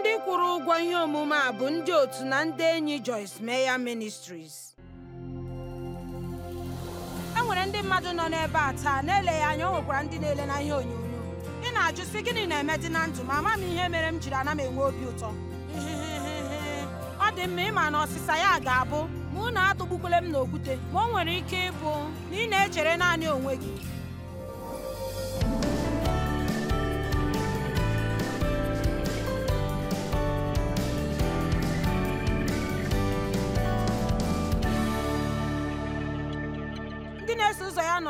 ndị kwụrụ ụgwọ ihe omume a bụ ndị otu na ndị enyi Joyce meya Ministries e nwere ndị mmadụ nọ n'ebe a taa na-eleghị anya o nwekwara ndị na-ele na ihe onyonyo ị na-ajụ sị gịnị na-eme dị na ndụ ma ama m ihe mere m jiri ana m enwe obi ụtọ ọ dị mma ịma na ọsịsa ya ga-abụ ma na-atụgbukwule m n'okwute ma o nwere ike ịbụ na ị na-echere naanị onwe gị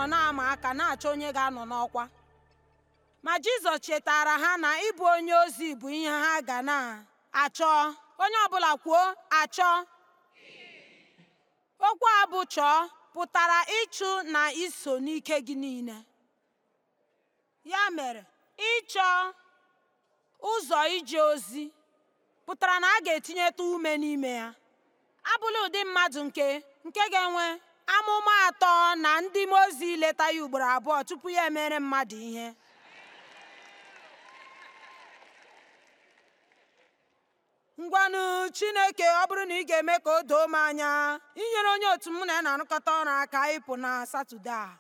nọ na-ama aka na-achọ onye ga-anọ n'ọkwa ma jizọs chetara ha na ịbụ onye ozi bụ ihe ha ga na-achọ onye ọbụla kwuo achọ okwu a bụ chọọ pụtara ịchụ na iso n'ike gị niile ya mere ịchọ ụzọ ije ozi pụtara na a ga-etinyeta ume n'ime ya abụla ụdị mmadụ nke nke ga-enwe amụma atọ na ndị mmụọ ozi leta ya ugboro abụọ tupu ya emere mmadụ ihe ngwanụ chineke ọ bụrụ na ị ga-eme ka o doo m anya inyere onye otu m na ị na-arụkọta ọrụ aka ịpụ na satọde a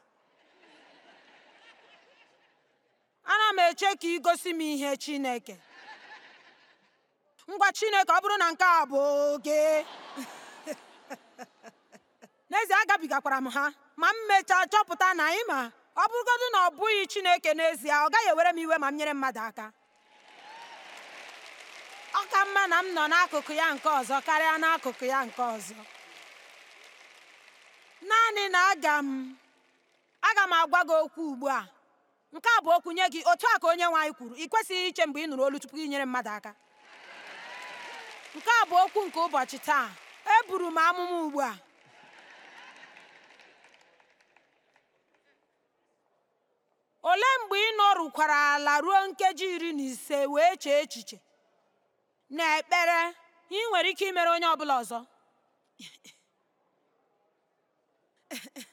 ana m eche ka ị gosi m ihe chineke ngwa chineke ọ bụrụ na nke a bụ oge agabigakwara m ha ma m mechaa chọpụta na anyị ma ọ bụrụgodị na ọ bụghị chineke n'ezie ọ gaghị ewere m iwe ma m nyere mmadụ aka ọ ka mma na m nọ n'akụkụ ya nke ọzọ karịa n'akụkụ ya nke ọzọ naanị na aga m aga m agwa gị okwu ugbu a nke a bụ okwu nye gị otu a ka onye nwe anyị kwuru ị kwesịghị iche mgbe ị nụrụ olu tupu inyere mmadụ aka nke a bụ okwu nke ụbọchị taa eburu m amụma ugbu a Ole mgbe ị nọrukwara ala ruo nkeji iri na ise wee chee echiche na ekpere ị nwere ike imere onye ọ bụla ọzọ?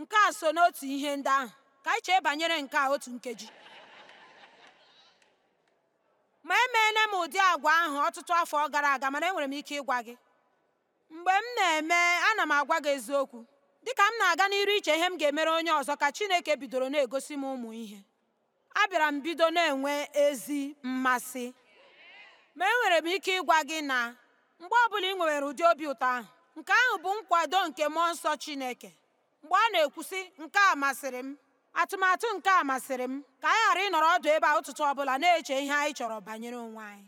nke a so n'otu ihe ndị ahụ ka anyị chee banyere nke a otu nkeji ma emeela m ụdị agwa ahụ ọtụtụ afọ gara aga mana enwere m ike ịgwa gị mgbe m na-eme ana m agwa gị eziokwu dịka m na-aga n'iru iche ihe m ga-emere onye ọzọ ka chineke bidoro na-egosi m ụmụ ihe abịara m bido na-enwe ezi mmasị ma enwere m ike ịgwa gị na mgbe ọbụla ị nwere ụdị obi ụtọ ahụ nke ahụ bụ nkwado nke mmụọ nsọ chineke mgbe ọ na-ekwusị nke a masịrị m atụmatụ nke a masịrị m ka anyị ghara ịnọrọ ọdụ ebe a ụtụtụ ọbụla na-eche ihe anyị chọrọ banyere onwe anyị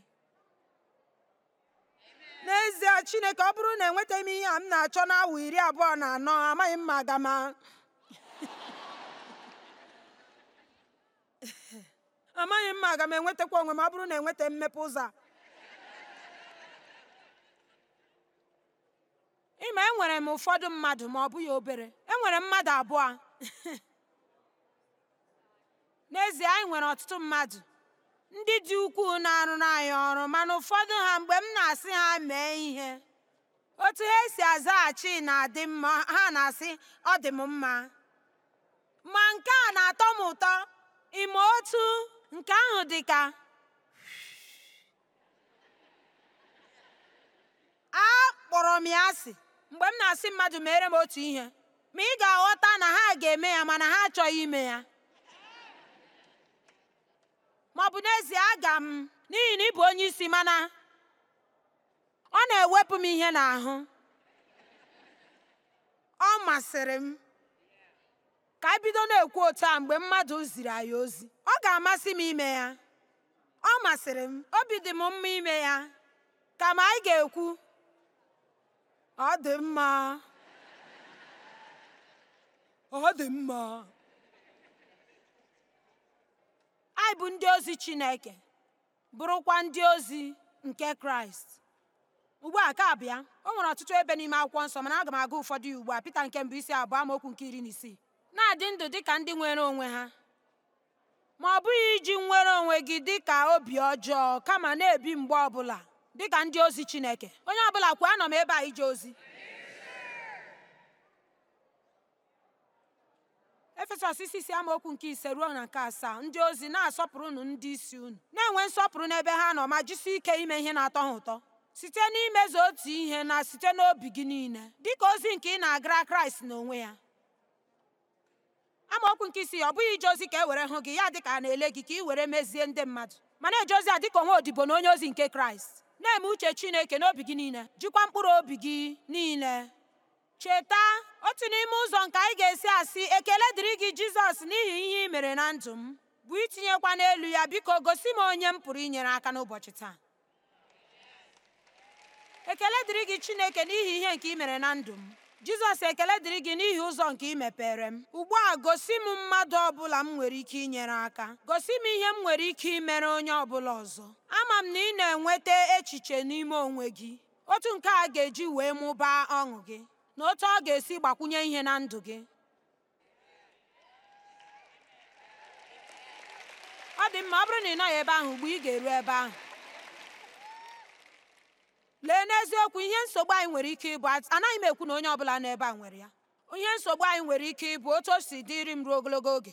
n'ezie chineke ọ bụrụ na enwetaghị m ihe a m na-achọ n'awa iri abụọ na anọ amaghị m ma aga m amaghị ma enwetakwa onwe m ọ bụrụ na enweta mmepe ụzọ ịma enwere m ụfọdụ mmadụ ma ọ bụghị obere enwere mmadụ abụọ n'ezie anyị nwere ọtụtụ mmadụ ndị dị ukwuu na-arụrụ anyị ọrụ mana ụfọdụ ha mgbe m na-asị ha mee ihe otu ha si azaghachi na-adị mma ha na-asị ọ dị m mma ma nke a na-atọ m ụtọ ime otu nke ahụ dị ka a kpọrọ m ya asị mgbe m na-asị mmadụ mere m otu ihe ma ị ga-aghọta na ha ga-eme ya mana ha achọghị ime ya ma ọ bụ n'ezie aga m n'ihi na ị bụ onye isi mana ọ na-ewepụ m ihe n'ahụ ọ masịrị m ka ebido bido na-ekwu otu a mgbe mmadụ ziri anyị ozi ọ ga-amasị m ime ya ọ masịrị m obi dị m mma ime ya kama anyị ga-ekwu ọ dị mma ọ dị mma anyị bụ ndị ozi Chineke bụrụkwa ndị ozi nke Kraịst ugbu a ka bịa o nwere ọtụtụ ebe n'ime akwụkwọ nsọ mana aga m aga ụfọdụ ya ugbu a Pita nke mbụ isi abụọ amaokwu nke iri na isii na-adị ndụ dị ka ndị nwere onwe ha ma ọ bụghị iji nwere onwe gị dị ka obi ọjọọ kama na-ebi mgbe ọbụla dị ka ndị ozi Chineke onye ọbụla kwuo anọ m ebe a ije ozi efesọs isi isi amaokwu nke ise ruo na nke asaa ndị ozi na-asọpụrụnụ asọpụrụ ndị isi unu na-enwe nsọpụrụ n'ebe ha nọ ma jisie ike ime ihe na-atọ ha ụtọ site n'imezu otu ihe na site n'obi gị niile dịka ozi nke ị na-agara kraịst n'onwe ya amaokwu nke isi ọ bụghị ije ozi ka e were hụ gị ya dịka a na-ele gị ka ị were mezie ndị mmadụ mana na-eje ozi a dịka onwe odibo na onye ozi nke kraịst na-eme uche chineke n'obi gị niile jikwa mkpụrụ obi gị niile cheta otu n'ime ụzọ nke anyị ga-esi asị ekele dịrị gị jizọs n'ihi ihe ị mere na ndụ m bụ itinyekwa n'elu ya biko gosi m onye m pụrụ inyere aka n'ụbọchị taa ekele dịrị gị chineke n'ihi ihe nke ị mere na ndụ m jizọs ekele dịrị gị n'ihi ụzọ nke ị mepere m ugbu a gosi m mmadụ ọbụla m nwere ike inyere aka gosi m ihe m nwere ike imere onye ọbụla ọzọ ama m na ị na-enweta echiche n'ime onwe gị otu nke a ga-eji wee mụbaa ọṅụ gị na otu ọ ga-esi gbakwunye ihe na ndụ gị ọ dị mma ọ bụrụ na ị nọghị ebe ahụ mgbe ị ga-eru ebe ahụ lee n'eziokwu ihe nsogbu anyị nwere ike ịbụ anaghị m ekwu na onye ọbụla nọ ebe a nwere ya ihe nsogbu anyị nwere ike ịbụ otu o si dịri m ruo ogologo oge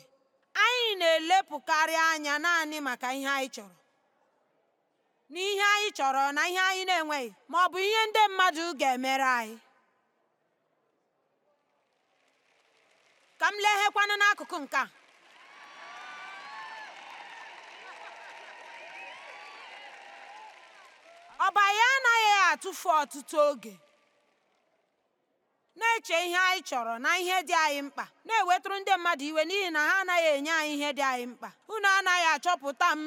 anyị na-elepụkarị anya naanị maka ihe anyị chọrọ ihe anyị chọrọ na ihe anyị na-enweghị ma ọ bụ ihe ndị mmadụ ga-emere anyị ka m leghekwana n'akụkụ nke a ọba ya anaghị atụfu ọtụtụ oge na-eche ihe anyị chọrọ na ihe dị anyị mkpa na-ewetụrụ ndị mmadụ iwe n'ihi na ha anaghị enye anyị ihe dị anyị mkpa unu anaghị achọpụta m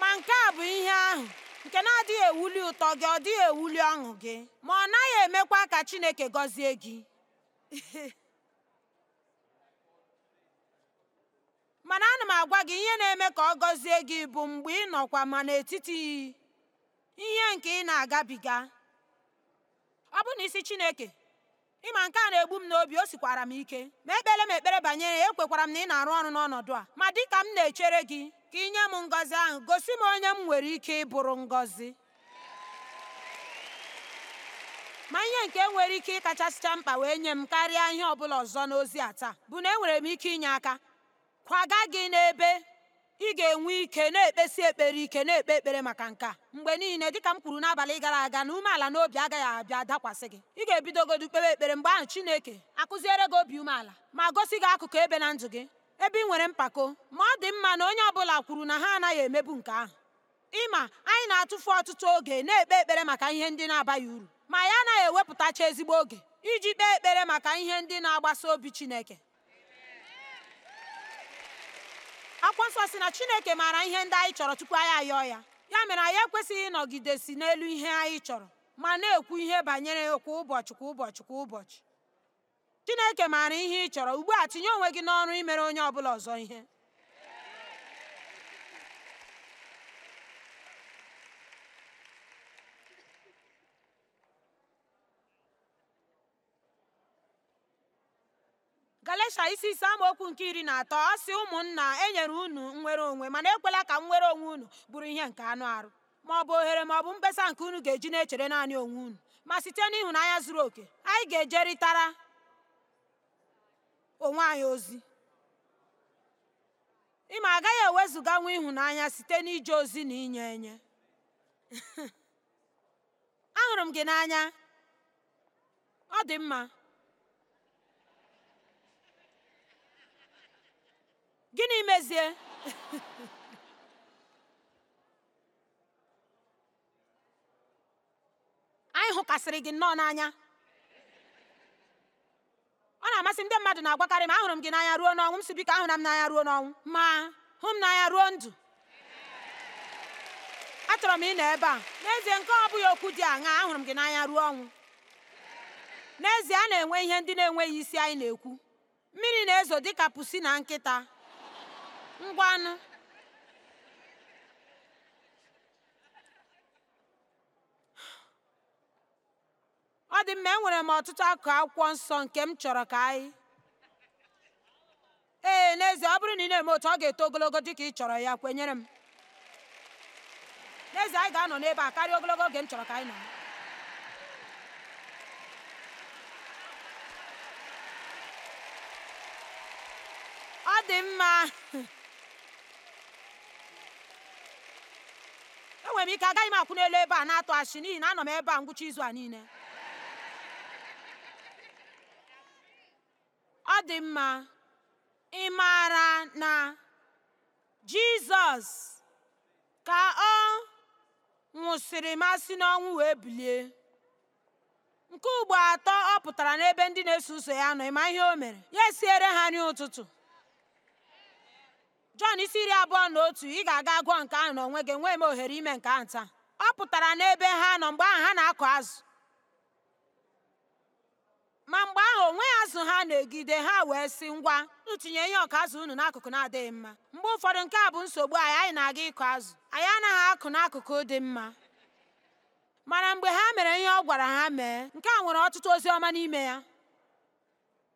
ma nke a bụ ihe ahụ nke na-adịghị ewuli ụtọ gị ọ dịghị ewuli ọṅụ gị ma ọ naghị emekwa ka Chineke gọzie gị mana ana m agwa gị ihe na-eme ka ọ gọzie gị bụ mgbe ị nọkwa ma n'etiti ihe nke ị na-agabiga ọ bụ na isi Chineke ịma nke a na-egbu m n'obi o sikwara m ike ma ekpere m ekpere banyere ya ekwekwara m na ị na-arụ ọrụ n'ọnọdụ a ma dịka m na-echere gị ka inye m ngọzi ahụ gosi m onye m nwere ike ịbụrụ ngọzi ma ihe nke nwere ike ịkachasịcha mkpa wee nye m karịa ihe ọbụla ọzọ n'ozi a taa bụ na enwere m ike inye aka kwaga gị n'ebe ị ga-enwe ike na-ekpesi ekpere ike na-ekpe ekpere maka nke a mgbe niile dịka m kwuru n'abalị gara aga na umeala na obi agaghị abịa dakwasị gị ị ga-ebidogodu kpewe ekpere mgbe ahụ Chineke akụziere gị obi umeala ma gosi gị akụkụ ebe na ndụ gị ebe ị nwere mpako ma ọ dị mma na onye ọbụla kwuru na ha anaghị emebu nke ahụ ịma anyị na-atụfu ọtụtụ oge na-ekpe ekpere maka ihe ndị na-abaghị uru ma ya anaghị ewepụtacha ezigbo oge iji kpee ekpere maka ihe ndị na-agbasa obi Chineke akwa nsọ si na Chineke maara ihe ndị anyị chọrọ tupu anyị ayọọ ya ya mere anyị ekwesịghị ịnọgidesi n'elu ihe anyị chọrọ ma na-ekwu ihe banyere ya kwa ụbọchị kwa ụbọchị kwa ụbọchị chineke maara ihe ị chọrọ ugbu a tinye onwe gị n'ọrụ imere onye ọ bụla ọzọ ihe galatia isi ise amaokwu nke iri na atọ ọ sị ụmụnna enyere unu nwere onwe mana ekwela ka nwere onwe unu bụrụ ihe nke anụ arụ ma ọ bụ ohere ma ọ bụ mkpesa nke unu ga-eji na-echere naanị onwe unu ma site n'ịhụnanya zuru oke anyị ga-ejeritara onwe anyị ozi ịma agaghị ewezuga nwa ịhụnanya site n'ije ozi na inye enye ahụrụ m gị n'anya ọ dị mma gịnị mezie anyị hụkasịrị gị nnọọ n'anya na-amasị ndị mmadụ na-agwakarị m ahụrụ m gị n'anya ruo n'ọnwụ m si biko ahụra m n'anya ruo n'ọnwụ ma hụ m n'anya ruo ndụ achọrọ m ịnọ ebe a n'ezie nke ọ bụghị okwu dị aṅa ahụrụ m gị n'anya ruo ọnwụ n'ezie a na-enwe ihe ndị na-enweghị isi anyị na-ekwu mmiri na-ezo dịka pusi na nkịta ngwanụ ọ dị mma enwere m ọtụtụ akụ akwụkwọ nsọ nke m chọrọ ka anyị ee n'ezie ọ bụrụ na ị na-eme otu ọ ga-eto ogologo dị ka ị chọrọ ya kwenyere m n'ezie anyị ga-anọ n'ebe a karịa ogologo oge m chọrọ ka anyị nọ ọ dị mma enwere m ike agaghị m akwụ n'elu ebe a na-atụ achị n'ihi na anọ m ebe a ngwụcha izu a niile Ọ dị mma, ị maara na Jizọs ka ọ nwụsịrị masị n'ọnwụ wee bilie. Nke ugbo atọ ọ pụtara n'ebe ndị na-eso ụzọ ya nọ, ịma ihe o mere? Ya esiere ha nri ụtụtụ. Jọn isi iri abụọ na otu ị ga-aga gụọ nke ahụ n'onwe gị, enweghị m ohere ime nke ahụ taa. Ọ pụtara n'ebe ha nọ mgbe ahụ ha na-akụ azụ ma mgbe ahụ onwe azụ ha na-egide ha wee sị ngwa ntụnye ihe ọka azụ unu n'akụkụ na-adịghị mma mgbe ụfọdụ nke a bụ nsogbu anyị anyị na-aga ịkụ azụ anyị anaghị akụ n'akụkụ dị mma mana mgbe ha mere ihe ọ gwara ha mee nke a nwere ọtụtụ ozi ọma n'ime ya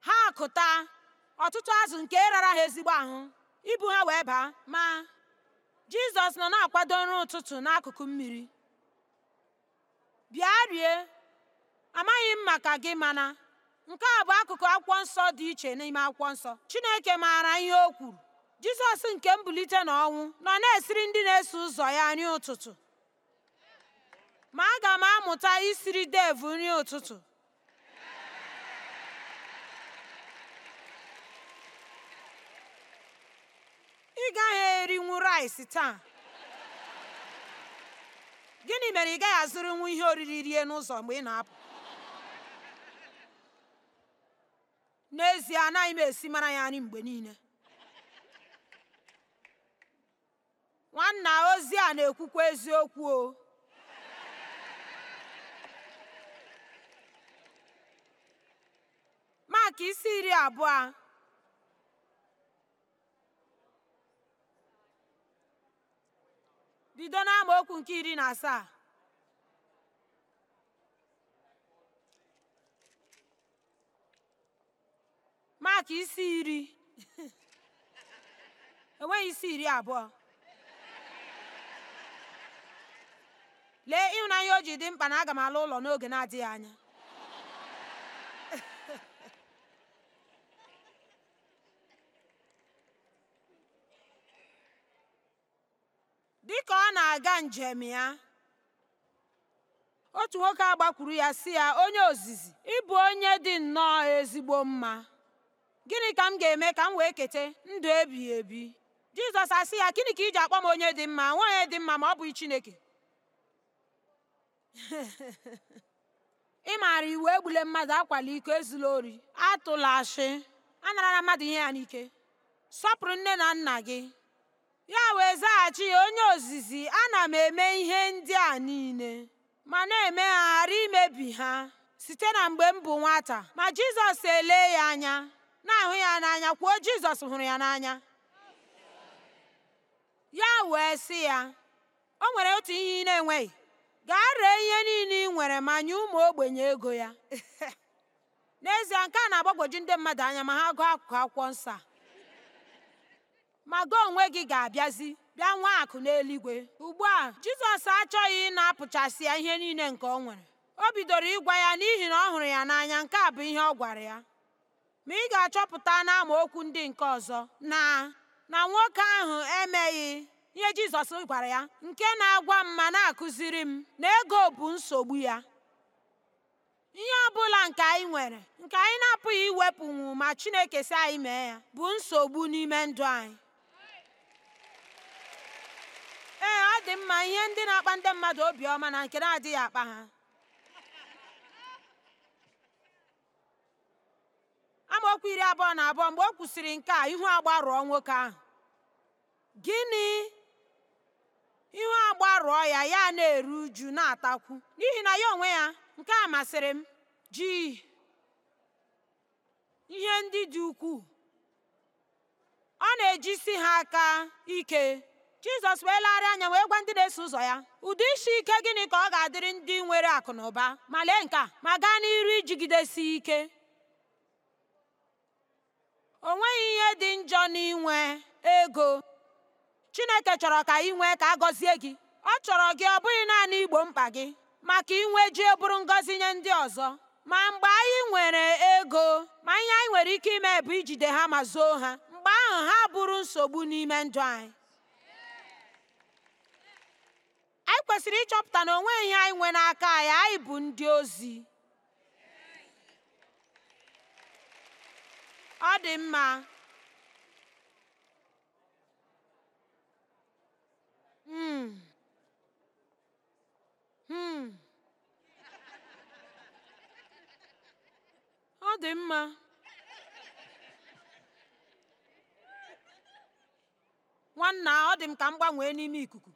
ha akụta ọtụtụ azụ nke rara ha ezigbo ahụ ibu ha wee baa ma jizọs nọ na-akwado nri ụtụtụ n'akụkụ mmiri bịa rie amaghị m maka gị mana nke a bụ akụkụ akwụkwọ nsọ dị iche n'ime akwụkwọ nsọ chineke maara ihe o kwuru jizọs nke mbulite ọnwụ nọ na-esiri ndị na-eso ụzọ ya nri ụtụtụ ma aga m amụta isiri devu nri ụtụtụ ị gaghị erinwu rice taa gịnị mere ị gaghị azụrụnwu ihe oriri rie n'ụzọ mgbe ị na-apụ n'ezie anaghị m esi mara ya nri mgbe niile nwanna ozi a na-ekwukwa eziokwu o Maka isi iri abụọ bido n'amaokwu nke iri na asaa maka isi iri enweghị isi iri abụọ lee ịhụnanya o ji dị mkpa na aga m ala ụlọ n'oge na-adịghị anya dị ka ọ na-aga njem ya otu nwoke agbakwuru ya si ya onye ozizi ịbụ onye dị nnọọ ezigbo mma gịnị ka m ga-eme ka m wee keta ndụ ebighị ebi jizọs asị ya gịnị ka i ji akpọ m onye dị mma nwaanyị dị mma ma ọ bụghị chineke ị maara iwu egbule mmadụ akwala iko ezula ori atụla a anarala mmadụ ihe ya n'ike sọpụrụ nne na nna gị ya wee zaghachi ya onye ozizi ana m eme ihe ndị a niile ma na-eme ha ghara imebi ha site na mgbe m bụ nwata ma jizọs elee ya anya na-ahụ ya n'anya kwuo jizọs hụrụ ya n'anya ya wee sị ya o nwere otu ihe ị na-enweghị gaa ree ihe niile ị nwere ma nye ụmụ ogbenye ego ya n'ezie nke a na-agbagwoju ndị mmadụ anya ma ha gụọ akụkụ akwụkwọ nsọ ma gị onwe gị ga-abịazi bịa nwa akụ n'eluigwe ugbu a jizọs achọghị na-apụchasị ya ihe niile nke o nwere o bidoro ịgwa ya n'ihi na ọ hụrụ ya n'anya nke a bụ ihe ọ gwara ya Ma ị ga-achọpụta okwu ndị nke ọzọ na na nwoke ahụ emeghị ihe Jizọs gwara ya nke na-agwa m ma na-akụziri m na ego bụ nsogbu ya. Ihe ọ bụla nke anyị nwere nke anyị na-apụghị iwepụnwu ma Chineke si anyị mee ya bụ nsogbu n'ime ndụ anyị. Ee, ọ dị mma ihe ndị na-akpa ndị mmadụ obiọma na nke na-adịghị akpa ha. amaokwu iri abụọ na abụọ mgbe o kwusịrị nke a ihu agbarụọ nwoke ahụ gịnị ihu agbarụọ ya ya na-eru uju na-atakwu n'ihi na ya onwe ya nke a masịrị m ji ihe ndị dị ukwuu ọ na-ejisi ha aka ike jizọs wee anya wee gwa ndị na-eso ụzọ ya ụdị isi ike gịnị ka ọ ga-adịrị ndị nwere akụ na ụba ma lee nke a ma gaa n'iru ijigidesi ike O ihe dị njọ n'inwe ego. Chineke chọrọ ka inwe nwee ka a gọzie gị. Ọ chọrọ gị ọ bụghị naanị igbo mkpa gị maka inwe ji bụrụ ngọzi nye ndị ọzọ. Ma mgbe anyị nwere ego ma ihe anyị nwere ike ime bụ ijide ha ma zoo ha mgbe ahụ ha bụrụ nsogbu n'ime ndụ anyị. Anyị kwesịrị ịchọpụta na onwe ihe anyị nwe n'aka anyị anyị bụ ndị ozi. ọ dị mma hmm. Hmm. ọ dị mma nwanna ọ dị m ka m gbanwee n'ime ikuku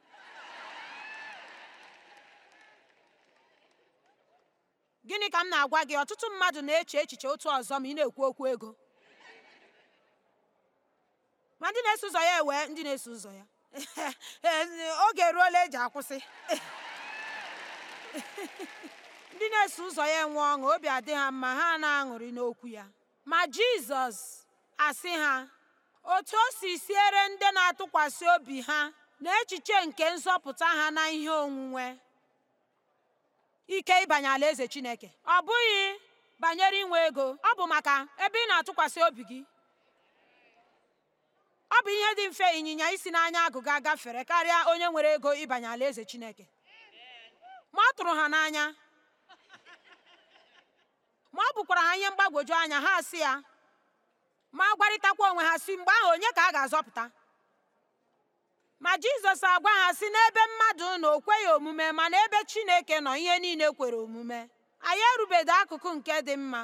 gịnị ka m na-agwa gị ọtụtụ mmadụ na-eche echiche otu ọzọ ma ị na-ekwu okwu ego ma ndị na-eso ụzọ ya ewee ndị na-eso ụzọ ya oge eruola eji akwụsị ndị na-eso ụzọ ya enwe ọṅụ obi adị ha mma ha na-aṅụrị n'okwu ya ma jizọs asị ha otu o si siere ndị na-atụkwasị obi ha na echiche nke nzọpụta ha na ihe onwunwe ike ịbanye alaeze chineke ọ bụghị banyere inwe ego ọ bụ maka ebe ị na-atụkwasị obi gị ọ bụ ihe dị mfe ịnyịnya isi n'anya agụga gafere karịa onye nwere ego ịbanye alaeze chineke ma ọ tụrụ ha n'anya ma ọ bụkwara ha ihe mgbagwoju anya ha si ya ma gwarịtakwa onwe ha si mgbe ahụ onye ka a ga-azọpụta ma jizọs agwa ha si n'ebe mmadụ na o kweghị omume mana ebe chineke nọ ihe niile kwere omume anyị erubedo akụkụ nke dị mma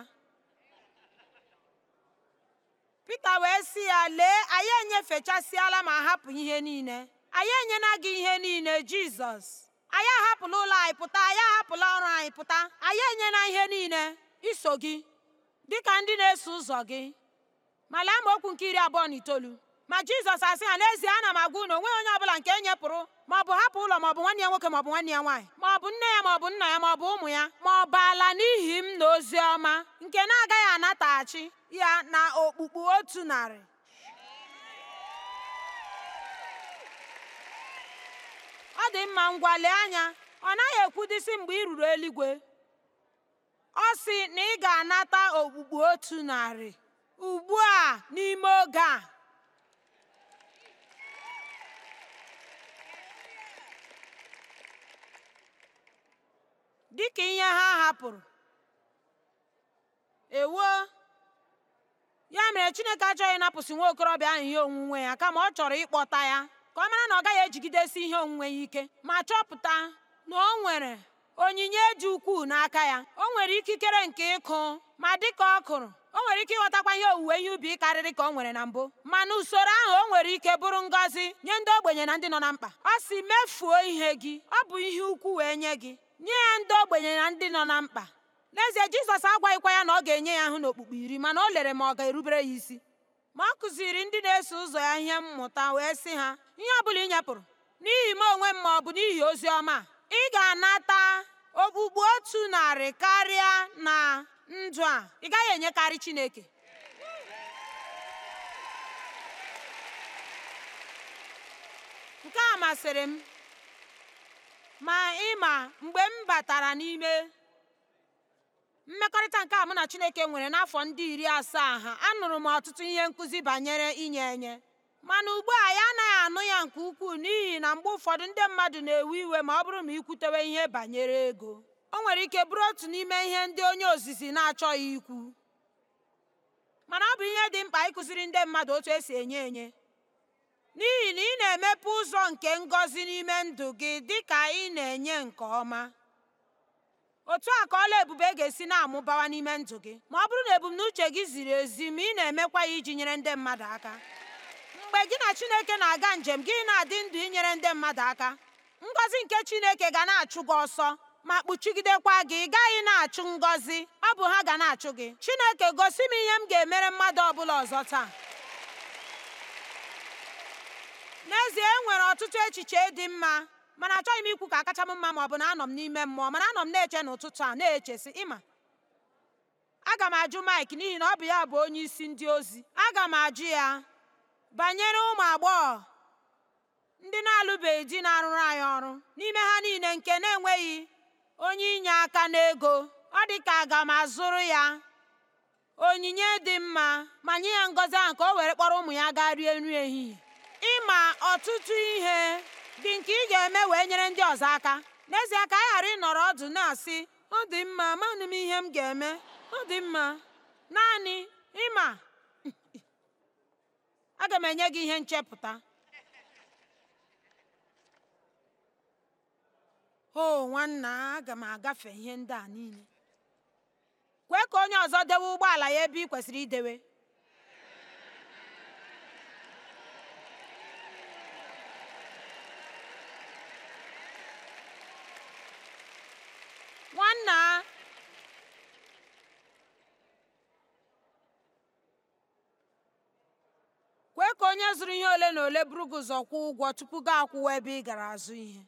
Pita wee si ya lee anyị enyefechasịala ma hapụ ihe niile anyị enyela gị ihe niile Jizọs anyị ahapụla ụlọ anyị pụta anyị ahapụla ọrụ anyị pụta anyị enyela ihe niile iso gị dịka ndị na-eso ụzọ gị ma lee okwu nke iri abụọ na itoolu ma jizọs asị ha n'ezie ana m agwa unu onwe onye ọbụla nke enyepụrụ ma ọ bụ hapụ ụlọ maọbụ nwanne ya nwoke maọbụ nwanne ya nwaanyị ma ọ bụ nne ya ma nna ya maọbụ ụmụ ya ma ọ bụ ala n'ihi m na ozi ọma nke na-agaghị anataghachi ya na okpukpu otu narị ọ dị mma ngwa lee anya ọ naghị ekwudisi mgbe ị ruru eluigwe ọ sị na ị ga-anata okpukpu otu narị ugbu a n'ime oge a dịka ihe ha hapụrụ ewuo ya mere chineke achọghị ịnapụsị nwa okorobịa ahụ ihe onwunwe ya kama ọ chọrọ ịkpọta ya ka ọ mara na ọ gaghị ejigidesi ihe onwunwe ya ike ma chọpụta na o nwere onyinye dị ukwuu n'aka ya o nwere ikikere nke ịkụ ma dịka ọ kụrụ o nwere ike ịghọtakwa ihe owuwe ihe ubi karịrị ka o nwere na mbụ ma na usoro ahụ o nwere ike bụrụ ngọzi nye ndị ogbenye na ndị nọ na mkpa ọ si mefuo ihe gị ọ bụ ihe ukwu wee nye gị nye ya ndị ogbenye na ndị nọ na mkpa n'ezie jizọs agwaghịkwa ya na ọ ga-enye ya ahụ n'okpukpe iri mana o lere ma ọ ga-erubere ya isi ma ọ kụziri ndị na-eso ụzọ ya ihe mmụta wee sị ha ihe ọ bụla ị nyapụrụ n'ihi m onwe m ma ọ bụ n'ihi ozi ọma ị ga-anata okpukpu otu narị karịa na ndụ a ị gaghị enyekarị chineke nke a masịrị m ma ịma mgbe m batara n'ime mmekọrịta nke a mụ na chineke nwere n'afọ ndị iri asaa ha anụrụ m ọtụtụ ihe nkụzi banyere inye enye mana ugbu a ya anaghị anụ ya nke ukwuu n'ihi na mgbe ụfọdụ ndị mmadụ na-ewe iwe ma ọ bụrụ ma ikwutewe ihe banyere ego o nwere ike bụrụ otu n'ime ihe ndị onye ozizi na-achọghị ikwu mana ọ bụ ihe dị mkpa ịkụziri ndị mmadụ otu esi enye enye n'ihi na ị na-emepe ụzọ nke ngọzi n'ime ndụ gị dị ka ị na-enye nke ọma otu a ka ọla ebube ga-esi na-amụbawa n'ime ndụ gị ma ọ bụrụ na ebumnuche gị ziri ezi ma ị na-emekwa ya iji nyere ndị mmadụ aka mgbe gị na Chineke na-aga njem gị na-adị ndụ inyere ndị mmadụ aka ngọzi nke Chineke ga na-achụ gị ọsọ ma kpuchigidekwa gị ị gaghị na-achụ ngọzi ọ bụ ha ga na-achụ gị Chineke gosi m ihe m ga-emere mmadụ ọ bụla ọzọ taa n'ezie e nwere ọtụtụ echiche dị mma mana achọghị m ikwu ka akacha m mma ma ọ bụ na anọ m n'ime mmụọ mana anọ m na-eche n'ụtụtụ a na echesi ịma aga m ajụ Mike n'ihi na ọ bụ ya bụ onye isi ndị ozi aga m ajụ ya banyere ụmụ agbọghọ ndị na-alụbeghị di na-arụrụ anyị ọrụ n'ime ha niile nke na-enweghị onye inye aka n'ego ọ dị ka aga m azụrụ ya onyinye dị mma ma nye ya ngọzi ahụ ka o were kpọrọ ụmụ ya gaa rie nri ehihie ịma ọtụtụ ihe dị nke ị ga-eme wee nyere ndị ọzọ aka n'ezie ka anyị ghara ịnọrọ ọdụ na-asị ọ dị mma manụ m ihe m ga-eme ọ dị mma naanị ịma aga m enye gị ihe nchepụta o nwanna aga m agafe ihe ndị a niile kwee ka onye ọzọ dewe ụgbọala ya ebe ị kwesịrị idewe nna kwee ka onye zụrụ ihe ole na ole buru gị ụzọ kwụọ ụgwọ tupu gị akwụwa ebe ị gara azụ ihe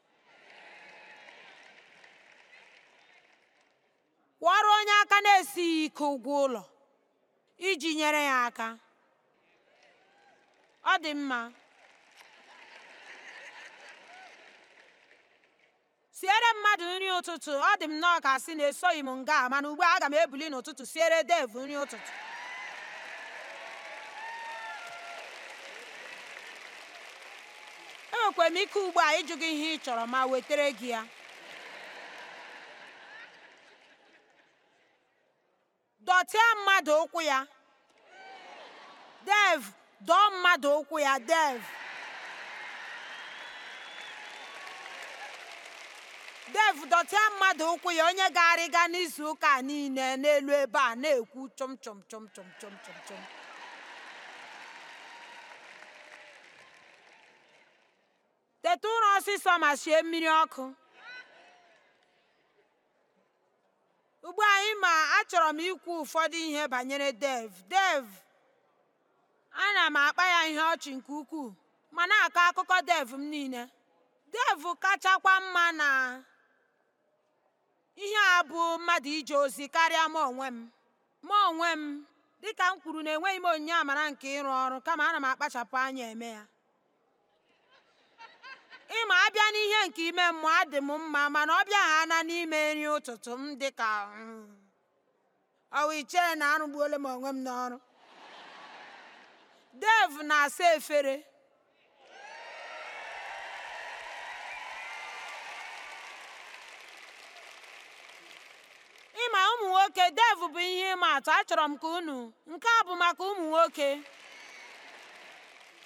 kwụọrụ onye aka na-esighị ike ụgwọ ụlọ iji nyere ya aka ọ dị mma siere mmadụ nri ụtụtụ ọ dị m nnọọ ka sị na esoghị m nga mana ugbu a aga m ebuli n'ụtụtụ siere dev nri ụtụtụ enwekwara m ike ugbu a ịjụ gị ihe ị chọrọ ma wetere gị ya dọtịa mmadụ ụkwụ ya dev dọọ mmadụ ụkwụ ya dev Dave dọtịa mmadụ ụkwụ ya onye ga-arịga n'izu ụka niile n'elu ebe a na-ekwu chọm chọm chọm chọm chọm chọm chọm teta ụrọ ọsịsọ ma sie mmiri ọkụ ugbu anyị ma achọrọ m ikwu ụfọdụ ihe banyere dev dev ana m akpa ya ihe ọchị nke ukwuu ma na-akọ akụkọ dev m niile dev kachakwa mma na ihe a bụ mmadụ ije ozi karịa m onwe m ma onwe m dịka m kwuru na enweghị m onyinye amara nke ịrụ ọrụ kama ana m akpachapụ anya eme ya ịma abịa n'ihe nke ime mmụọ adị m mma mana ọ bịa ha na n'ime nri ụtụtụ m dịka hmm, ọwa ichere na arụgbuola m onwe m n'ọrụ dev na-asa efere ụmụ nwoke dev bụ ihe ịma atụ achọrọ m ka unu nke a bụ maka ụmụ nwoke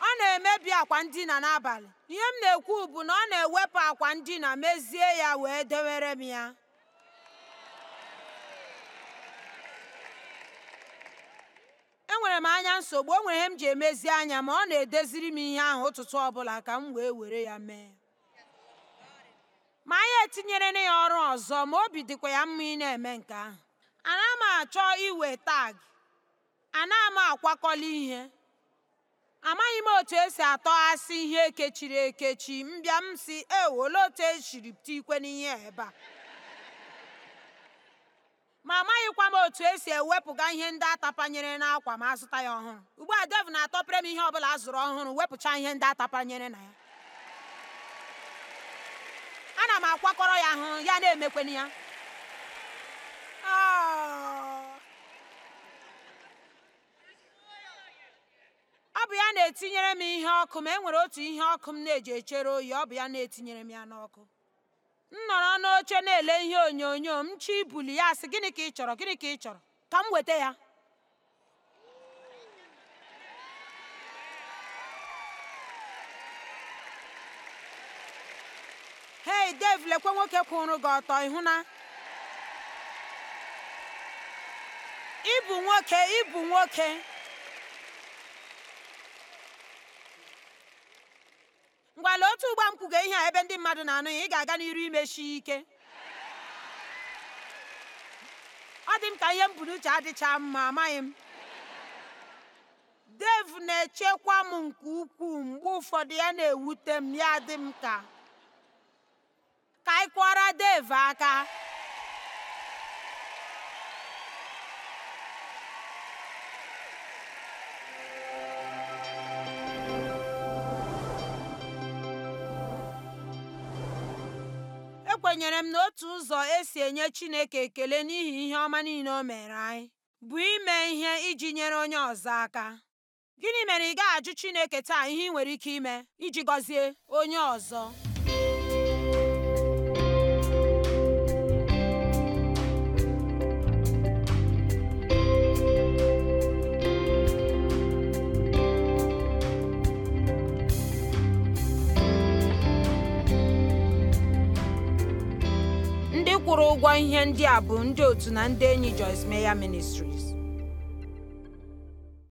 ọ na-emebi akwa ndina n'abalị ihe m na-ekwu bụ na ọ na-ewepụ akwa ndina mezie ya wee dewere m ya enwere m anya nsogbu o ihe m ji emezi anya ma ọ na-edeziri m ihe ahụ ụtụtụ ọbụla ka m wee were ya mee etinyere na ya ọrụ ọzọ ma obi dịkwa ya mma ị na-eme nke ahụ ana m achọ iwe tag ana m akwakọla ihe amaghị m otu esi atọghasị ihe ekechiri ekechi mbịa m si ewo olee otu esiri pụta ikwe n'ihe ebe a ma amaghịkwa m otu esi ewepụga ihe ndị atapanyere n'akwa ma azụta ya ọhụrụ ugbu a dev na-atọpere m ihe ọbụla a zụrụ ọhụrụ wepụcha ihe ndị atapanyere na ya na m akwakọrọ ya ahụ ya na-emekweni ya ah! ọ bụ ya na-etinyere m ihe ọkụ ma e nwere otu ihe ọkụ m na-eji echere oyi ọ bụ ya na-etinyere m ya n'ọkụ m nọrọ n'oche na-ele ihe onyonyo m chi buli ya sị gịnị ka ị chọrọ gịnị ka ị chọrọ ka m weta ya hei dev lekwe nwoke kwụrụ gị ọtọ ịhụ na ịbụ nwoke ịbụ nwoke ngwala otu ụgba m ihe a ebe ndị mmadụ na-anụ ya ị ga-aga n'iru imechi ike ọ dị m ka ihe mbụ bu n'uche adịcha mma amaghị m dev na-echekwa m nke ukwuu mgbe ụfọdụ ya na-ewute m ya dị m ka ka anyị kụọra Dave aka ekwenyere m na otu ụzọ esi enye Chineke ekele n'ihi ihe ọma niile o mere anyị bụ ime ihe iji nyere onye ọzọ aka gịnị mere ị gaghị ajụ Chineke taa ihe ị nwere ike ime iji gọzie onye ọzọ ụgwọ ihe ndị a bụ ndị otu na ndị enyi Joyce Meyer Ministries.